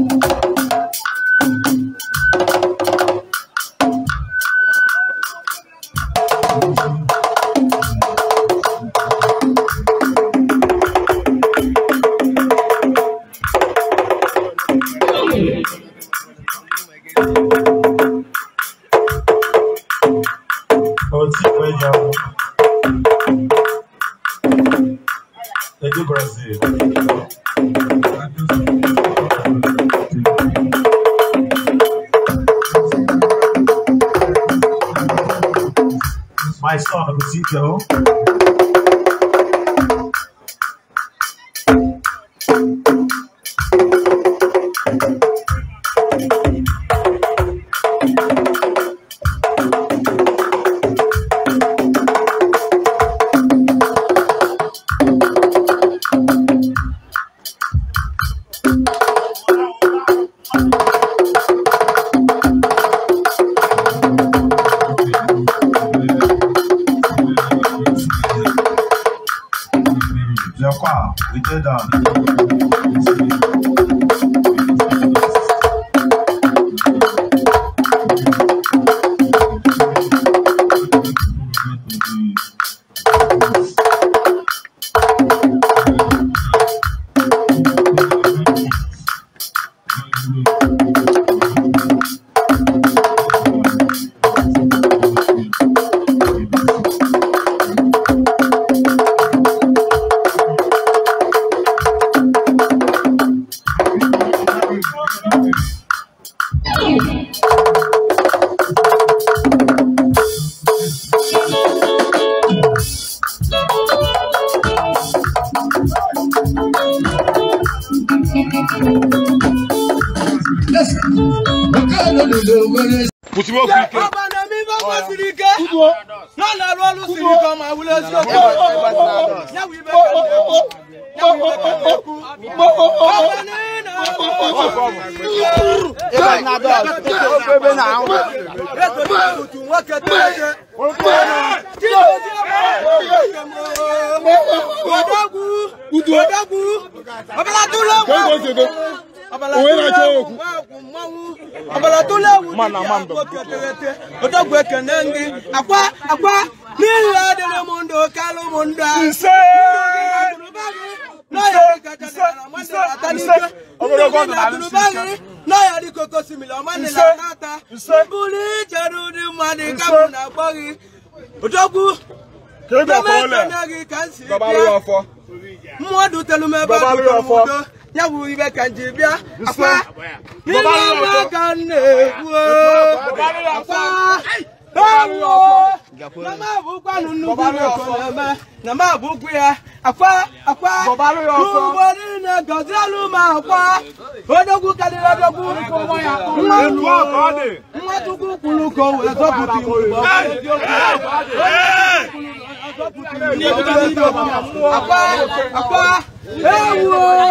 手机回家。I saw a gazebo We did that. you. Pusi mo sirike. Ọba Lọ́la rọ́ọ̀lù sirike ọmọ àwùlé sirike. Yàwù ibẹ̀ kẹ́lẹ́. Yàwù ibẹ̀ kẹ́lẹ́ kú. ní nà sirike. Ebe na dọ́ọ̀lù owenacheokwu mana mando odogwe kene nri akwa akwa n'ihi adịrị m ndụ kalụ m ndụ ise nyawu ibe kanji bia afa baba lo kan ne wo afa bawo na ma bu kwa nunu bu ko ma na ma bu kwa afa afa baba lo yo so bo ni na gozalu ma afa odogu kadira dogu ko mo ya ko ma lu ko de mo tu ku kulu ko we so ku ti mo afa afa ewo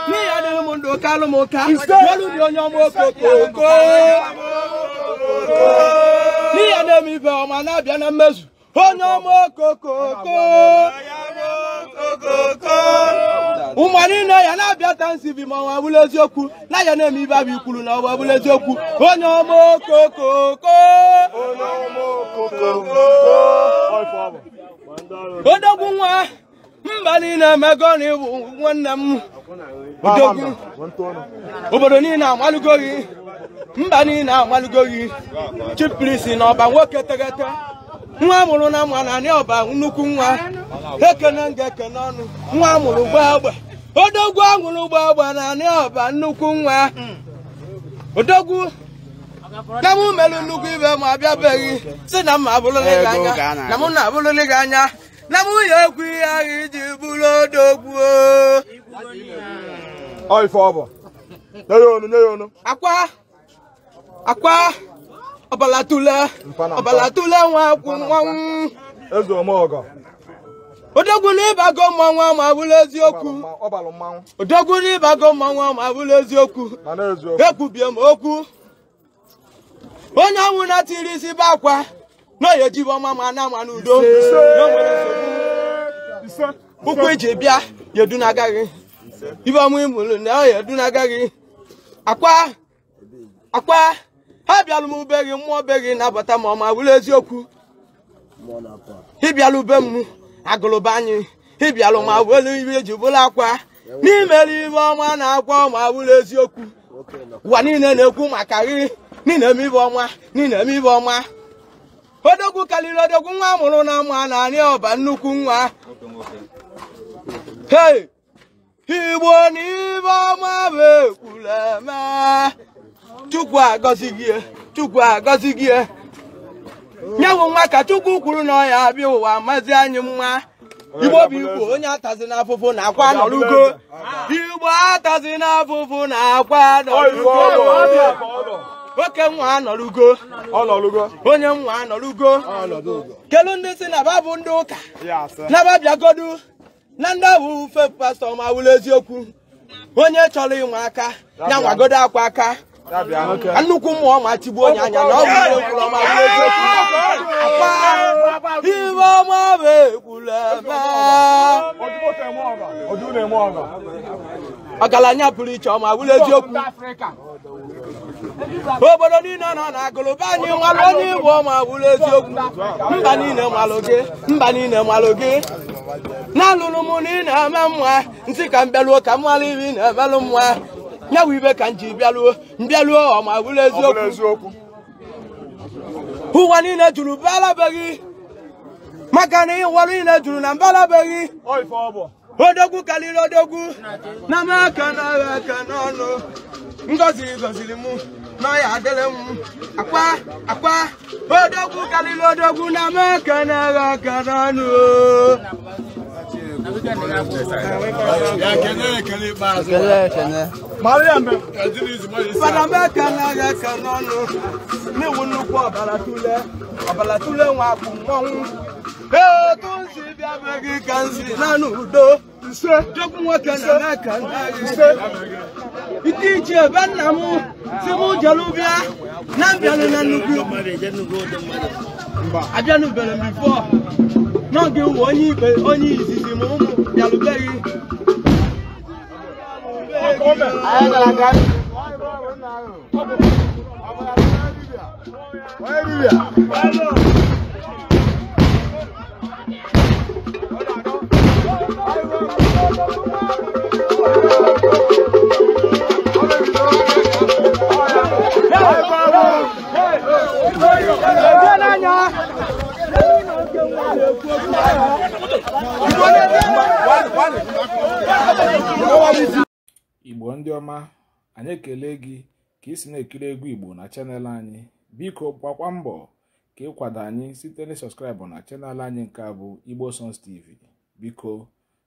oke alụ ụka dị onye ọma okooko na-eme ibe ọma na-abịa na mmezu onye ọma ụmụ niile ya na-abịa ta ma ọwa eziokwu na ya na-eme ibe abụ ikwuru na ọwa bụrụ eziokwu onye ọma odogwu nwa mba niile emego na ịbụ nwanne m udogwu obodo niile amalụgo gị mba niile amalụgo gị chiprisi na ọba nwoke teghete nwa mụrụ na mma na anị ọba nnukwu nwa ekene nga ekene ọnụ nwa mụrụ gbagba odogwu anwụrụ agba na anị ọba nnukwu nwa odogwu na mụ merụ nnukwu ibe ma abịabeghị si na mma abụrụlị gị anya na mụ na abụrụlị gị anya na nwunye egwu ihe ahụ iji bụrụ odogwu ọ nye akwa akwa ọbalatule ọbalatule nwa akwụ nwanwụ eze omeọgọ odogwu n'ịbago ma abụrụ eziokwu odogwu n'ịbago mmanwụ ma abụrụ eziokwu ekwubie m okwu onye anwụ na-atiri isi akwa na ya ejibe ọma ma na ama n'udo ụkwụ eji bịa yedu na-agaghị ibe ọma imụrụ na ya edu na-agaghị akwa akwa ha bịalụ m ube gị mmụọ be gị na-abata ma ọma wụrụ eziokwu ịbịalụ ube m agụlụba anyị ịbịalụ ma welu ibe eji bụrụ akwa n'imere ibe ọma na-akwa ọma wụrụ eziokwu ụwa niile na-ekwu maka gị niile eme ibe ọma niile eme ibe ọma odogwu karịrị odogwu nwa amụrụ na mma na anị ọba nnukwu nwa hei igbo na ibe ọma bụ ekwula eme chukwu agọzi gị e, chukwu agọzi gị e. nyewu nwa ka chukwu kwuru na ọya abịa ụwa mazi anyị mma. igbo bụ igbo onye atazi n'afụfụ na akwa nọrugo igbo atazi n'afụfụ na akwa nọrugo nwoke nwa anọrugo ọlọrugo onye nwa anọrugo kelu ndị si na babụ ndị ụka nababiagodu na ndị abụ ufe pastọ ma wụrụ eziokwu onye chọrọ ịnwe aka ya nwagodo akwa aka nnukwu mmụọ ma tigbuo onye anya na ọ bụ ekwuru ọma eziokwu ibe ọma bụ ekwuru ebe ọgaranya pụrụ iche ọma wụrụ eziokwu obodo niile nọ na agụlụba anyị nwalu onye igbo ma wụrụ eziokwu mba niile nwalu gị mba niile nwalu gị na-alụrụ m na ị na-eme mma ntị ka m bịaruo ka m nwara ibe na-emelụ mma nyawa ibe ka m ji bịaruo mbịaruo ọma wụrụ eziokwu ụwa niile juru bịalabeghị maka na ịwarụ niile juru na mbịalabeghị odogwu karịrị odogwu na m aka n'ọrụ aka n'ọnụ ngọziri gọziri mụ n'ọya adịrị m akwa akwa odogwu karịrị odogwu na m aka n'ọrụ aka n'ọnụ fada m aka n'ọrụ aka n'ọnụ na-ewu nnukwu ọbara tule ọbara tule nwa bụ mmọnwụ ee otu nsi bịa be gị ka nsi na n'udo duk nwoke na n'aka ike ichie be nna m si m jelu bịa na mbịanụ na nnukwu abịanụbere m bifo n'oge uwe onye ikpe onye izizi m ụmụ bịarubeghị Where are you? igbo ndị ọma anyị ekele gị ka ị si na-ekiri egwu igbo na chanel anyị biko gbakwa mbọ ka ịkwado anyị site na sọskraịbụ na chanel anyị nke a bụ igbo songs tv biko